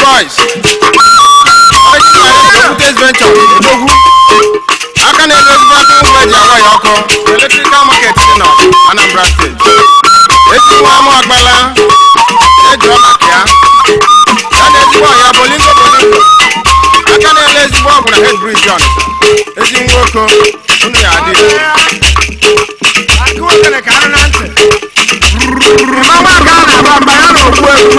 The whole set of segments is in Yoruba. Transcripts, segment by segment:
boys. Okwute's venture Odogwu. Aka na-edozibu aka ngwa eji awaghị ọkụ Electrical market dị na Anambra State. Esi nwa amụ agbala eji ọla ka ya. Ya na ezigbo ọhịa bolingo bolingo. Aka na-ele ezigbo ọgwụ na head bridge on. Ezi nwoke unu ya adị. Akụ okele ka anụ na ntị. Mama ka a na-agba mba ya na okpu egwu.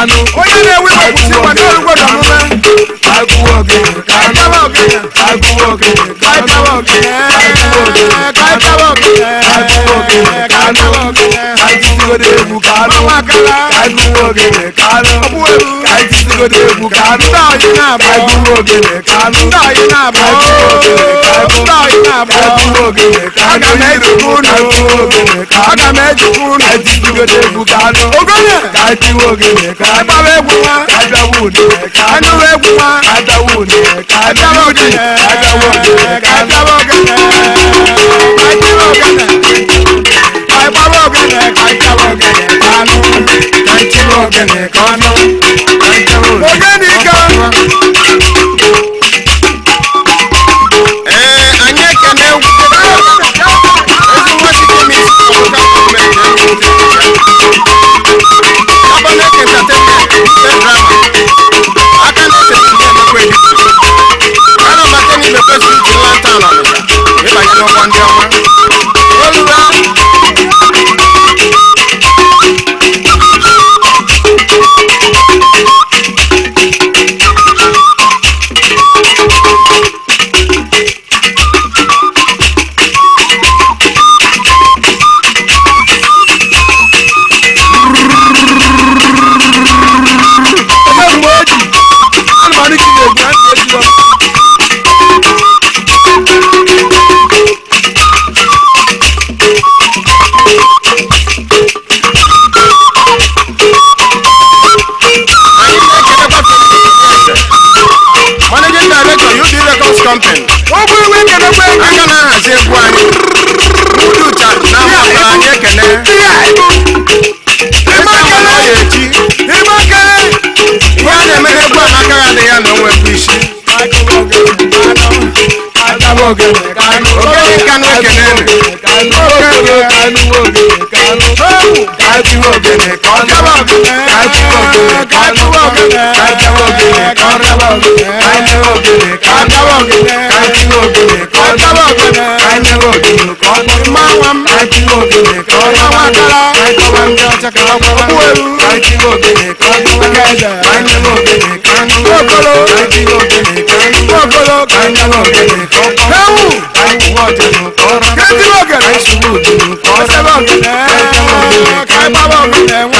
àánú. Onye na-ewe iwepụ si weta olugbodo omume. Agụwa ogene, kaịtawa ogene. Agụwa ogene, kaịtawa ogene. Agụwa ogene, kaịtawa ogene. Agụwa ogene, kaịtawa ogene. Kaịtisigodo egwu kanụ. Mamakala. Agụwa ogene, kanụ. Ọbụweru. Kaịtisigodo egwu kanụ. Ndị ọyị na-abụ. Agụwa ogene, kanụ. Ndị ọyị na-abụ. Agụwa ogene, kanụ na-abụ aga m ejikwa unu aga m ejikwa unu ejibigodo egwu ka anụ ogonye ka tiwe ogene ka agbawa egwu nwa ka abịawa une ka anụwa egwu nwa ka abịawa une ka abịawa ogene ka abịawa ogene ka abịawa ogene ka tiwe ogene ka agbawa ogene ka abịawa ogene ka anụ ka tiwe ogene ka ọnụ something. Ó bú ìwé kẹ̀dẹ̀ pé. Aka náà hàzí egwu anyị. Mudu cha na mmadụ anyị ekene. Ịma kele. Ịma kele. Ihe a na-eme egwu a n'aka ya adịghị anọ nwe bụ isi. Ogene kanụ ekene. Ogene kanụ. Ogene kanụ. Ogene kanụ. Ogene kanụ kájọwọ́ ògèlè kan jábọ̀ ògèlè kájọwọ́ ògèlè kan jábọ̀ ògèlè kájọwọ́ ògèlè kan jábọ̀ ògèlè kájọwọ́ ògèlè kan mọ́wọ́n kájọwọ́ ògèlè kan mọ́wọ́n dára kájọwọ́ ògèlè kan mọ́wọ́n kájọwọ́ ògèlè kan kókòló kájọwọ́ ògèlè kan kókòló kájọwọ́ ògèlè kan kẹ́wù kájọwọ́ ògèlè kan kẹ́tìlọ́gẹ̀lẹ̀ kájọwọ́ ògèlè kan sẹ́lọ́gẹ̀lẹ̀ kájọwọ́ ògèlè kan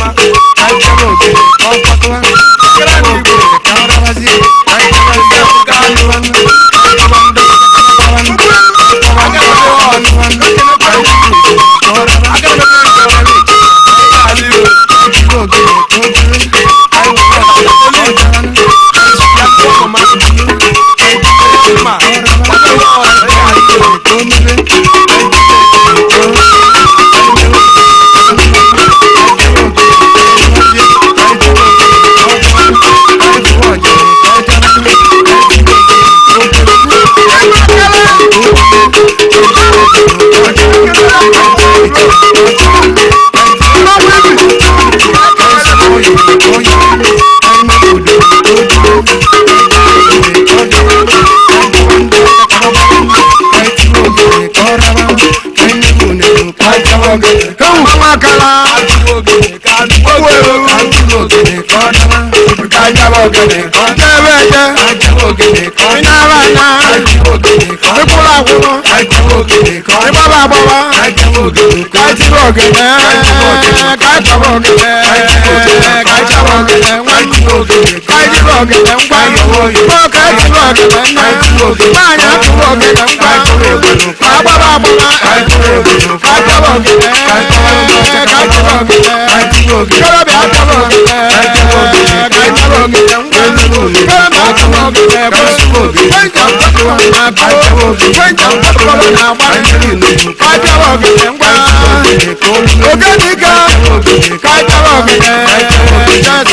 Mama, kọ́wọ́ kala. owó ẹ̀rọ kájábọ̀ gẹ̀dẹ̀ kan. jẹ́bẹ̀ jẹ́ iná bá ná. ìkúra kúrò. ìbá bá bọ̀ wá. kájíbọ̀ gẹ̀dẹ̀ kájábọ̀ gẹ̀dẹ̀ kájábọ̀ gẹ̀dẹ̀ wọ́n ọ̀gẹ̀dẹ̀ ń gbàgbọ́ mọ́ọ̀kẹ́ tu ọ̀gẹ̀dẹ̀ ń náà báyà tu ọ̀gẹ̀dẹ̀ ń gbàgbọ́ àgbàbà àgbàbà àjọbọ̀ ọ̀gẹ̀dẹ̀ kájọbọ̀ ọ̀gẹ̀dẹ̀ kọ́lọ́bì àjọbọ̀ ọ̀gẹ̀dẹ̀ kájọbọ̀ ọ̀gẹ̀dẹ̀ ń gbàgbọ́ kọ́lọ́bì àjọbọ̀ ọ̀gẹ̀dẹ̀ kájọbọ̀ ọ̀gẹ̀dẹ̀ ń gbàgbọ́ ògẹ́nìkan kájọbọ̀ ọ̀gẹ̀dẹ̀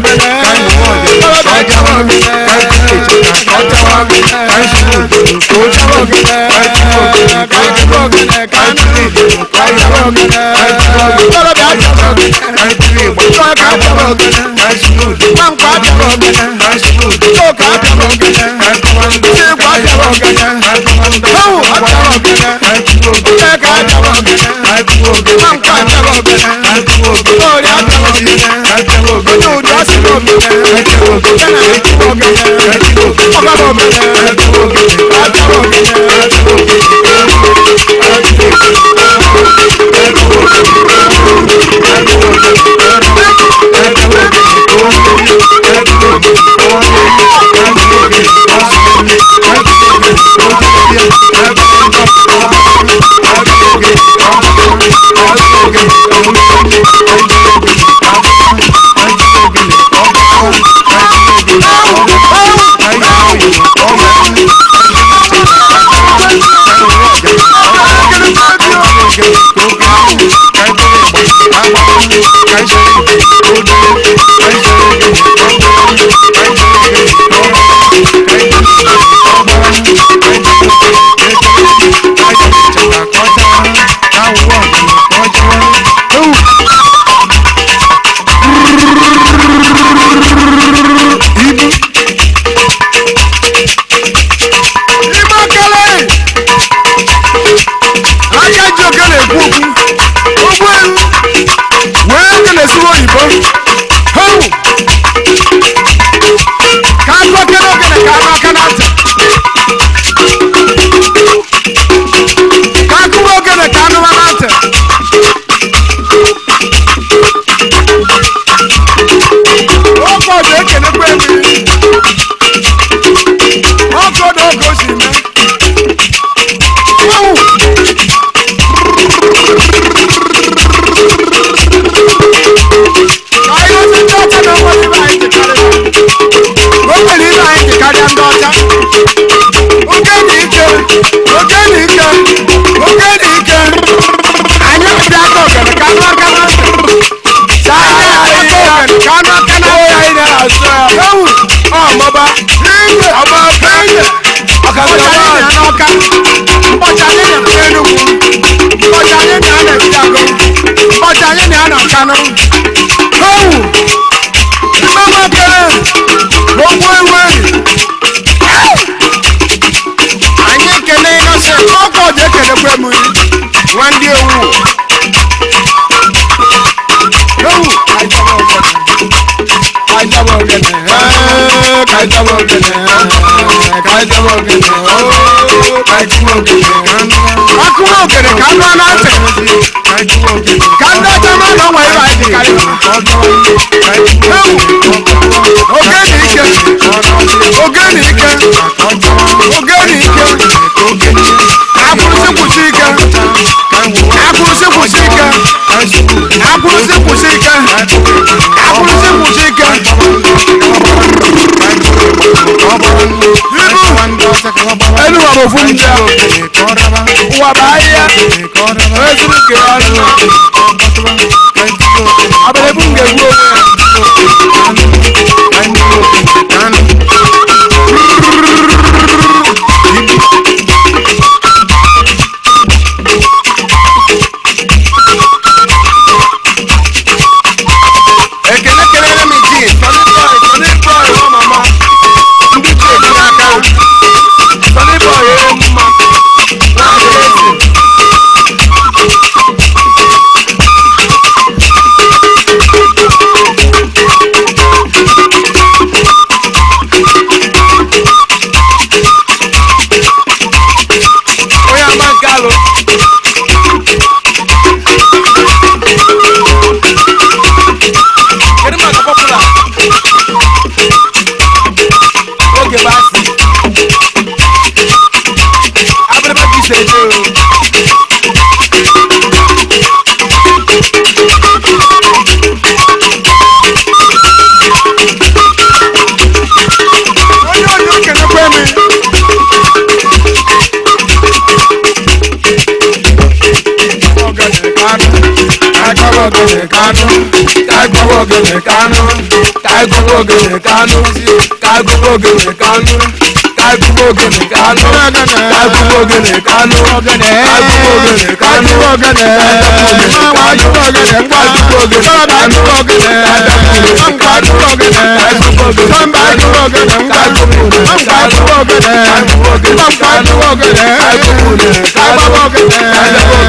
mi káyọ̀ wọ̀dẹ̀ ọjà wọn mi káyọ̀ kejìlá ọjà wọn mi káyọ̀ òdòdó ọjà wọn mi káyọ̀ òdòdó káyọ̀ òdòdó káyọ̀ òdòdó káyọ̀ òdòdó káyọ̀ òdòdó ọjà wọn mi káyọ̀ ìgbà káyọ̀ òdòdó káyọ̀ òdòdó káyọ̀ òdòdó káyọ̀ òdòdó káyọ̀ òdòdó káyọ̀ òdòdó káyọ̀ òdòdó káyọ̀ òdòdó báwo ọjà wọn mi káyọ̀ òdòdó káyọ̀ òdòdó káyọ̀ òdòdó káyọ̀ òdòdó Yeah. Thank you. Báwo? Ìgbà máa bẹ̀rẹ̀ gbogbo ìwé. Anyị ekele ịnọsị ọkọ dị ekelekwe m nwa ndị ewu. Ewu kajaba ogene. Kajaba ogene. Kajaba ogene. Kajaba ogene. Kajaba ogene òkèrè ká lọ láǹtẹ̀ ká dájọ́ má lọ wọ ìwà ẹ̀dì kárí. ewu oge ní ike oge ní ike oge ní ike akwụrụsị kwụsị ike akwụrụsị kwụsị ike akwụrụsị kwụsị ike akwụrụsị kwụsị ike. Elu wa bụ ofu ndị a, ụwa Abele bunge wo. kagbowó gèlè kánú kagbowó gèlè kánú kagbowó gèlè kánú kagbowó gèlè kánú kagbowó gèlè kánú kagbowó gèlè kánú kagbowó gèlè kánú kagbowó gèlè kánú kagbowó gèlè kánú kagbowó gèlè kánú kagbowó gèlè kánú kagbowó gèlè kánú.